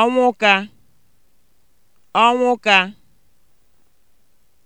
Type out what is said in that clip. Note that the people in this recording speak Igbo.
ọnwụ ka ọnwụ ka